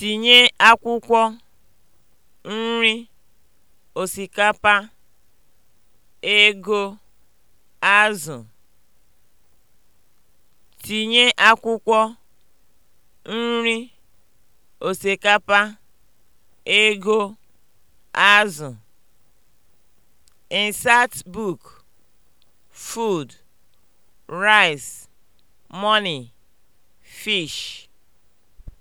Tinye akwụkwọ nri osikapa, ego, azụ. Tinye akwụkwọ nri osikapa, ego, azụ. book: Food, Rice, Money, Fish